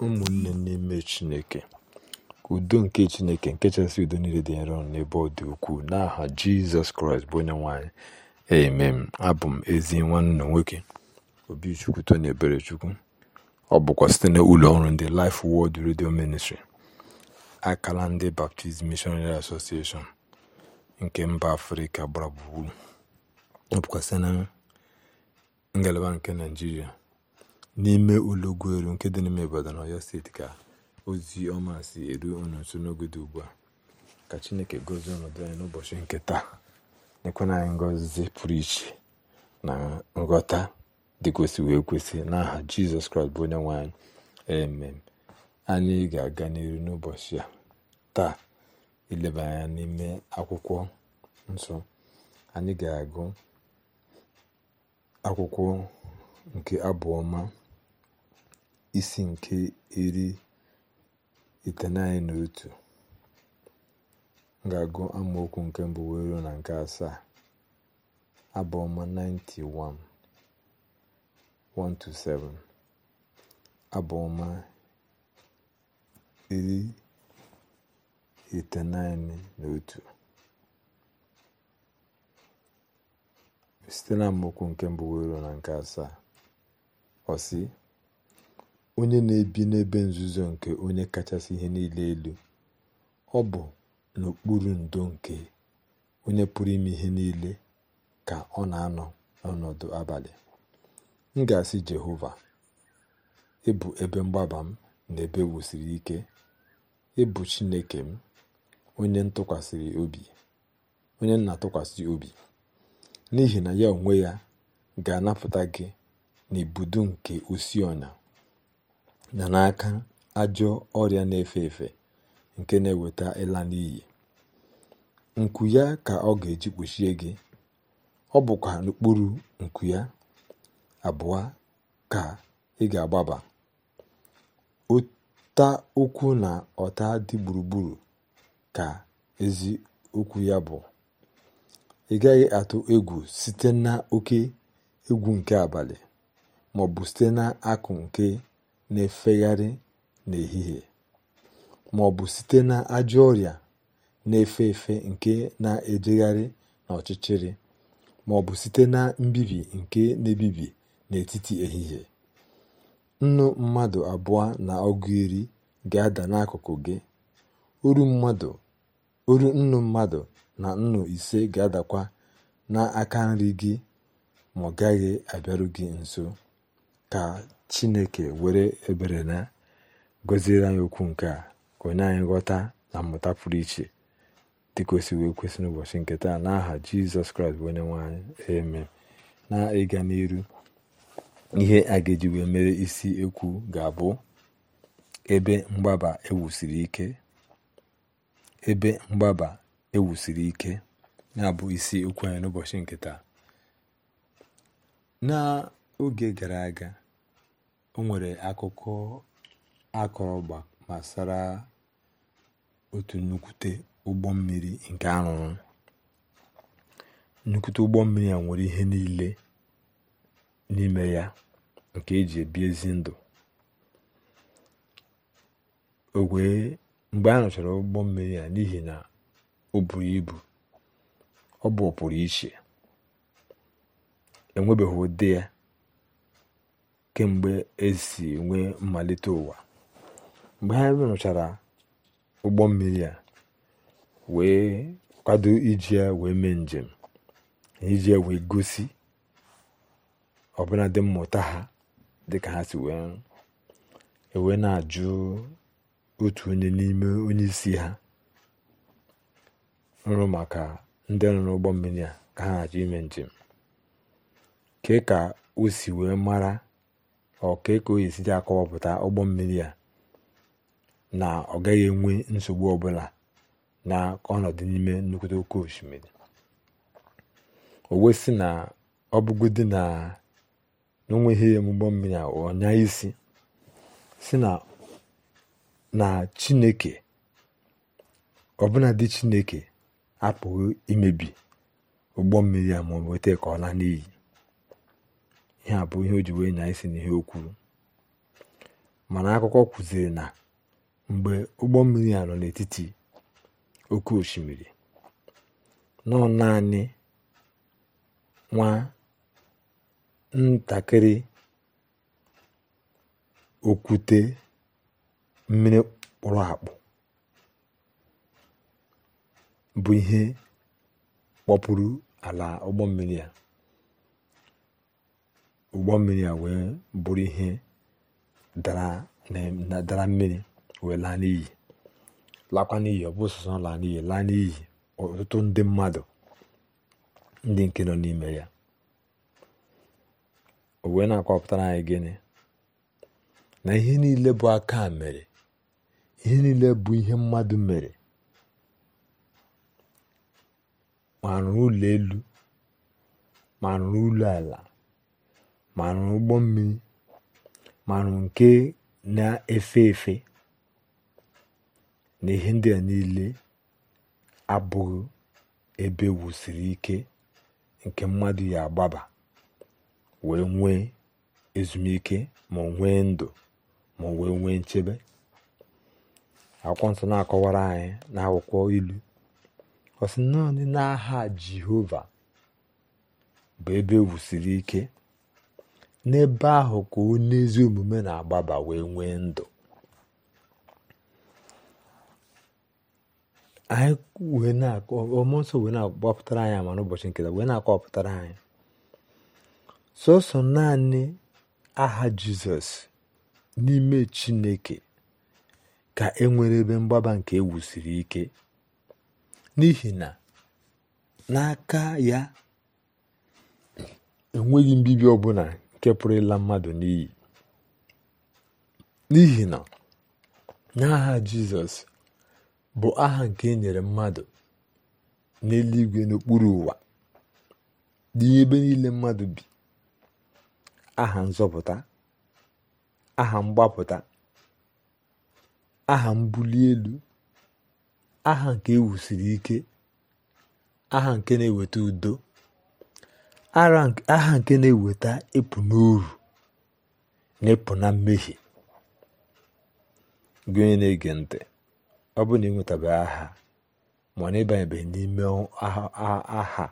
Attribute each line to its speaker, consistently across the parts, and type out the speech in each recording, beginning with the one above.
Speaker 1: ụmụnne n'ime chineke udo nke chineke nke chasị udo niile dị nro n'ebe ọ dị ukwuu n'aha jizọs kraịst bụ onye nwanyị emem abụ m ezi nwanne nwoke obichukwu tony eberechukwu ọ bụkwa site na ụlọ ọrụ ndị Life Word redio Ministry akala ndị Baptist Missionary Association nke mba afrịka gbara gburugburu ọ bụkwa site na ngalaba nke naijiria n'ime Ulugweru nke dị n'ime Ibadan na Ọyọ steeti ka ozi ọma si eru unu nso n'oge dị ugbu a ka Chineke gozie ọnọdụ anyị n'ụbọchị nke taa nyekwana anyị ngọzi pụrụ iche na nghọta dị kwesị wee kwesị n'aha Jizọs Kraịst bụ onye nwe anyị amen anyị ga-aga n'iru n'ụbọchị a taa ileba anya n'ime akwụkwọ nsọ anyị ga-agụ akwụkwọ nke abụọma isi nke iri iteghete na otu m ga-agụ amaokwu nke mbụ wee ruo na nke asaa abụọma 91 1-7 abụọma iri iteghete na otu site na amaokwu nke mbụ wee ruo na nke asaa ọsị onye na-ebi n'ebe nzuzo nke onye kachasị ihe niile elu ọ bụ n'okpuru ndo nke onye pụrụ ime ihe niile ka ọ na-anọ n'ọnọdụ abalị m ga-asị jehova ịbụ ebe mgbaba m na ebe wusiri ike ịbụ chineke m onye nna obi obi n'ihi na ya onwe ya ga-anapụta gị n'ibudo nke osi ọnya na n'aka ajọ ọrịa na-efe efe nke na-eweta ịla n'iyi nku ya ka ọ ga-eji kpuchie gị ọ bụkwa n'okpuru nku ya abụọ ka ị ga-agbaba ụta okwu na ọta dị gburugburu ka ezi okwu ya bụ ị gaghị atụ egwu site na oke egwu nke abalị maọbụ site na akụ nke na-efegharị n'ehihie ma ọ bụ site na ajọ ọrịa na-efe efe nke na-ejegharị n'ọchịchịrị ma ọ bụ site na mbibi nke na-ebibi n'etiti ehihie nnu mmadụ abụọ na ọgụ iri ga-ada n'akụkụ gị uru nnu mmadụ na nnu ise ga-adakwa n'aka nri gị ma ọ gaghị abịaru gị nso ka chineke were ebere na gọziere anyị okwu nke a ka onye anyị ghọta na mmụta pụrụ iche dị kwesịrị ekwesị n'ụbọchị nke taa n'aha jizọs kraịst bụ onye eme na ịga n'iru ihe a ga wee mere isi ekwu ga-abụ ebe mgbaba ewusiri ike ebe mgbaba ewusiri ike na-abụ isi okwu anyị n'ụbọchị nke taa n'oge gara aga o nwere akụkọ akọrọgba gbasara otu nnukwute ụgbọ mmiri nke arụrụ nnukwute ụgbọ mmiri a nwere ihe niile n'ime ya nke eji ebi ezi ndụ ogwee mgbe a rụchara ụgbọ mmiri a n'ihi na o buru ibu ọ bụ ọpụrụ iche enwebeghị ụdị ya kemgbe e si nwee mmalite ụwa. Mgbe ha rụchara ụgbọ mmiri a wee kwado iji ya wee mee njem iji ya wee gosi ọbụnadị mmụta ha dịka ha si wee ewee na-ajụ otu onye n'ime onye isi ha nrụ maka ndị nọ ụgbọ mmiri a ka ha na-achọ ime njem ke ka o si wee mara ọka ka oyi esite akọwapụta ụgbọ mmiri a na ọ gaghị enwe nsogbu ọbụla na ọnọdụ n'ime nnukwute oke osimiri o na ọ bụgodi na n'onweghị ụgbọ mmiri a ọnya isi si na chineke ọbụladị dị chineke apụghị imebi ụgbọ mmiri a ma ọ ka ọ laa n'iyi ihe a bụ ihe o ji wee nyaa isi n'ihe o kwuru mana akụkọ kwuziri na mgbe ụgbọ mmiri a nọ n'etiti oke osimiri nọ naanị nwa ntakịrị okwute mmiri kpụrụ akpụ bụ ihe kpọpụrụ ala ụgbọ mmiri a ụgbọ mmiri a wee bụrụ ihe dara mmiri wee laa n'iyi lakwa n'iyi ọ bụ sọsọ laa n'iyi laa n'iyi ọtụtụ ndị mmadụ ndị nke nọ n'ime ya o wee na akwọpụtara anyị gịnị na ihe niile bụ aka mere ihe niile bụ ihe mmadụ mere ma rụrụ ụlọ elu ma rụrụ ụlọ ala marụ ụgbọ mmiri marụ nke na-efe efe na ihe ndị a niile abụghị ebe e wusiri ike nke mmadụ ya agbaba wee nwee ezumike ma nwee ndụ ma wee nwee nchebe akwụkwọ nsọ na-akọwara anyị n'akwụkwọ ilu ọ sị naanị n'aha Jehova bụ ebe e wusiri ike n'ebe ahụ ka onye ezi omume na-agbaba wee nwee ndụ anyị wee na-akọ wee na anyị ama n'ụbọchị nketa wee na-akọpụtara anyị sọsọ naanị aha jizọs n'ime chineke ka e nwere ebe mgbaba nke ewusiri ike n'ihi na n'aka ya enweghị mbibi ọbụla nke pụrụ ịla mmadụ n'iyi n'ihi na n'aha jizọs bụ aha nke e nyere mmadụ n'eluigwe n'okpuru ụwa ebe niile mmadụ bi aha nzọpụta aha mgbapụta aha mbuli elu aha nke ewusiri ike aha nke na-eweta udo Aha nke na-eweta ịpụ n'uru na ịpụ na mmehie gị onye na-ege ntị ọ bụrụ na ị nwetabeghị aha ma ọ na ịbanyebeghị n'ime aha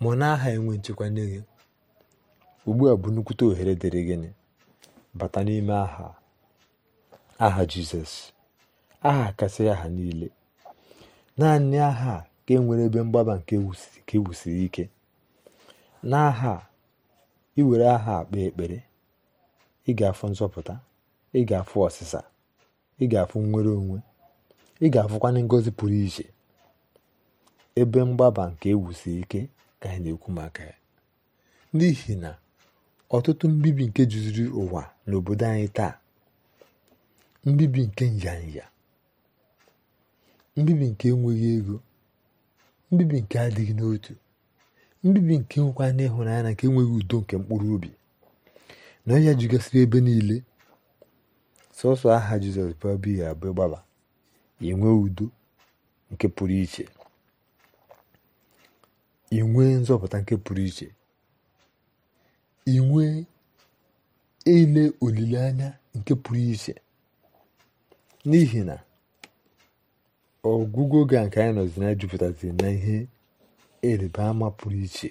Speaker 1: ma ọ na aha enwe nchekwa ugbu a bụ nnukwute ohere dịrị gịnị bata n'ime aha aha jizọs aha kasị aha niile naanị aha ka e nwere ebe mgbaba nke ewusiri e ike N'aha a, iwere were aha a kpee ekpere ị ga-afụ nzọpụta ị ga-afụ ọsịsa ị ga-afụ nnwere onwe ị ga-afụkwanụ ngozi pụrụ iche ebe mgbaba nke ewusi ike ka anyị na maka ya n'ihi na ọtụtụ mbibi nke juziri ụwa n'obodo anyị taa mbibi nke nyanya mbibi nke enweghị ego mbibi nke adịghị n'otu ndị mbibi nke nwekwa na nke enweghị udo nke mkpụrụ obi na ọhịa jugasịrị ebe niile sọsọ aha jizọs bụbighị abụ gbaba inwe udo nke pụrụ iche inwe nzọpụta nke pụrụ iche inwe ele olileanya nke pụrụ iche n'ihi na ọgwụgwọ oge a nke anyị nọzi na jupụtazi na ihe ịrịba ama pụrụ iche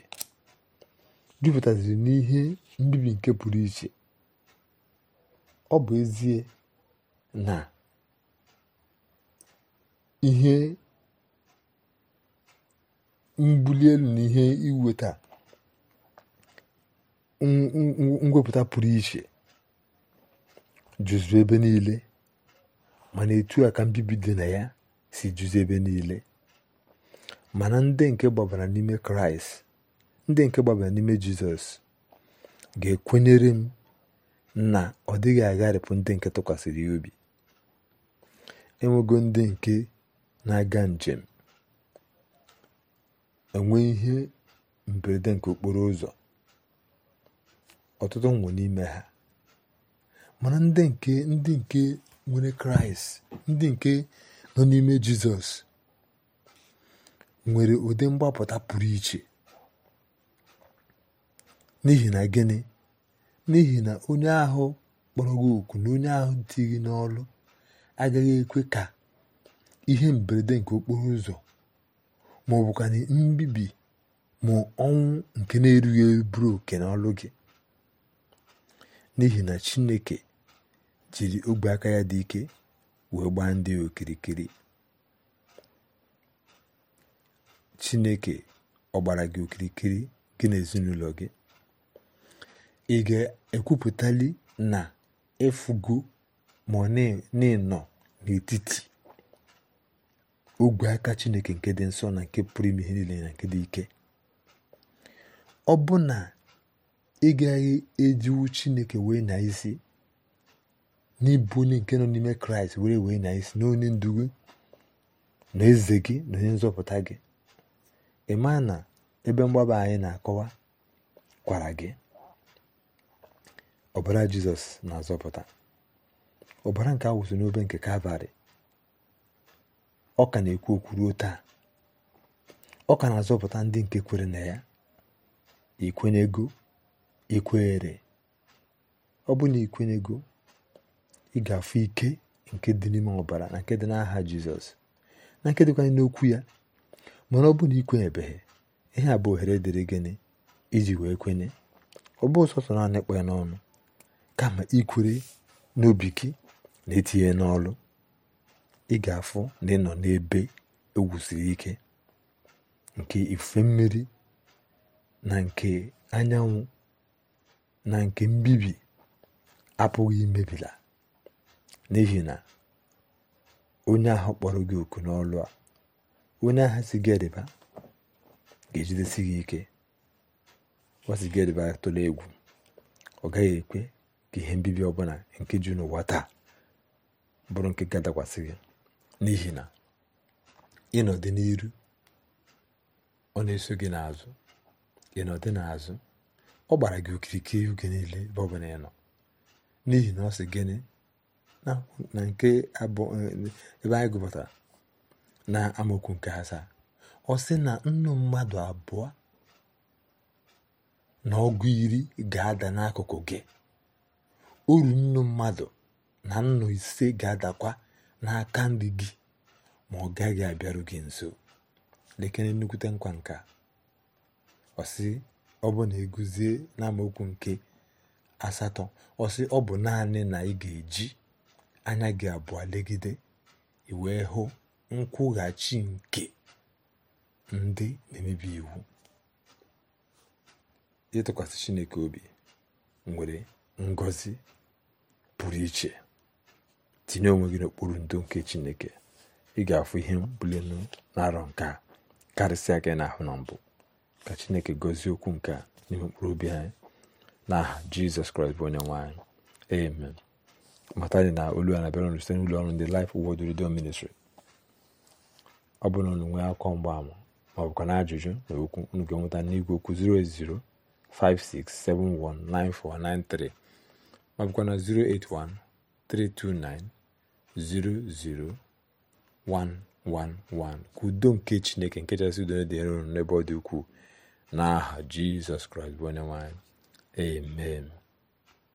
Speaker 1: jupụtaziri n'ihe mbibi nke pụrụ iche ọ bụ ezie na ihe mbuli elu na ihe iweta ngwepụta pụrụ iche jụzụ ebe niile mana etu a ka mbibi dị na ya si jụzụ ebe niile mana ndị nke gbabara n'ime kraịst ndị nke gbabara n'ime jizọs ga-ekwenyere m na ọ dịghị agharịpụ ndị nke tụkwasịrị ya obi enwego ndị nke na-aga njem enwe ihe mberede nke okporo ụzọ ọtụtụ nwụ n'ime ha mana ndị nke ndị nke nwere kraịst ndị nke nọ n'ime jizọs nwere ụdị mgbapụta pụrụ iche n'ihi na gịnị n'ihi na onye ahụ kpọrọ gị oku na onye ahụ dị n'ọlụ agaghị ekwe ka ihe mberede nke okporo ụzọ ma ọ bụkwa mbibi ma ọnwụ nke na-erughị eburu bụrụ oke n'ọlụ gị n'ihi na Chineke jiri ogwe aka ya dị ike wee gbaa ndị okirikiri chineke ọ gbara gị okirikiri gị na ezinụlọ gị ị ga-ekwupụtali na ịfụgo ma n'ịnọ n'etiti ogwe aka chineke nke dị nsọ na nke pụrụ ime ihe niile na nke dị ike ọ bụ na ị gaghị ejiwu chineke wee na isi n'ịbụ onye nke nọ n'ime kraịst were wee na isi na onye ndugu na eze gị na onye nzọpụta gị ị maa na ebe mgbaba anyị na-akọwa kwara gị ọbara jizọs na-azọpụta ọbara nke awụsụ n'obe nke kalvarị ọ ka na-ekwu okwu ruo taa ọ ka na-azọpụta ndị nke kwere na ya ikwenyego ikwere ọ bụ na ikwenyego ị ga-afụ ike nke dị n'ime ọbara na nke dị n'aha jizọs na nke n'okwu ya mana ọ bụ na ebeghị ihe a bụ ohere dịrị gịnị iji wee kwenye ọ bụ sọsọ naanị kpọọ n'ọnụ kama ikwere n'obi gị na etinye n'ọlụ ị ga-afụ na ị n'ebe egwusiri ike nke ife mmiri na nke anyanwụ na nke mbibi apụghị imebila n'ihi na onye ahụ kpọrọ gị oku n'ọlụ a onye ahụ si ga-ejidesi gị ike ọ si gediba tụla egwu ọ gaghị ekwe ka ihe mbibi ọbụla nke ji n'ụwa taa bụrụ nke ga-adakwasị gị n'ihi na ịnọdị n'iru ọ na-eso gị n'azụ ịnọdị n'azụ ọ gbara gị okirikiri oge niile ebe ọbụla ị n'ihi na ọ sị gịnị na nke abụ ebe eh, anyị gụpụtara na amaokwu nke asaa ọ sị na nnu mmadụ abụọ na ọgụ iri ga-ada n'akụkụ gị uru nnu mmadụ na nnu ise ga-adakwa n'aka ndị gị ma ọ gaghị abịaru gị nso lekere nnukwute nkwa nka ọsị ọ bụ na eguzie n'amaokwu nke asatọ ọsị ọ bụ naanị na ị ga-eji anya gị abụọ legide i hụ nkwụghachi nke ndị na-emebi iwu ịtụkwasị Chineke obi nwere ngozi pụrụ iche tinye onwe gị n'okpuru ndo nke Chineke ị ga-afụ ihe mbuli narọ na-arọ nke a karịsịa gị n'ahụ na mbụ ka Chineke gọzie okwu nke a n'ime mkpụrụ obi anyị n'aha Jizọs Kraịst bụ onye nwanyị amen mata dị na olu a na-abịara site n'ụlọ ọrụ ndị lif wod Redemption Ministry ọ bụrụ na unu nwee akọ mgbaama maọbụkwa na ajụjụ na okwu unu ga-enweta n'igwe okwu 08056719493 081 329 08132900111 ka udo nke chineke nke chasị udo dị nro n'ebe ọ dị n'aha jizọs kraịst bụ onye nwanyị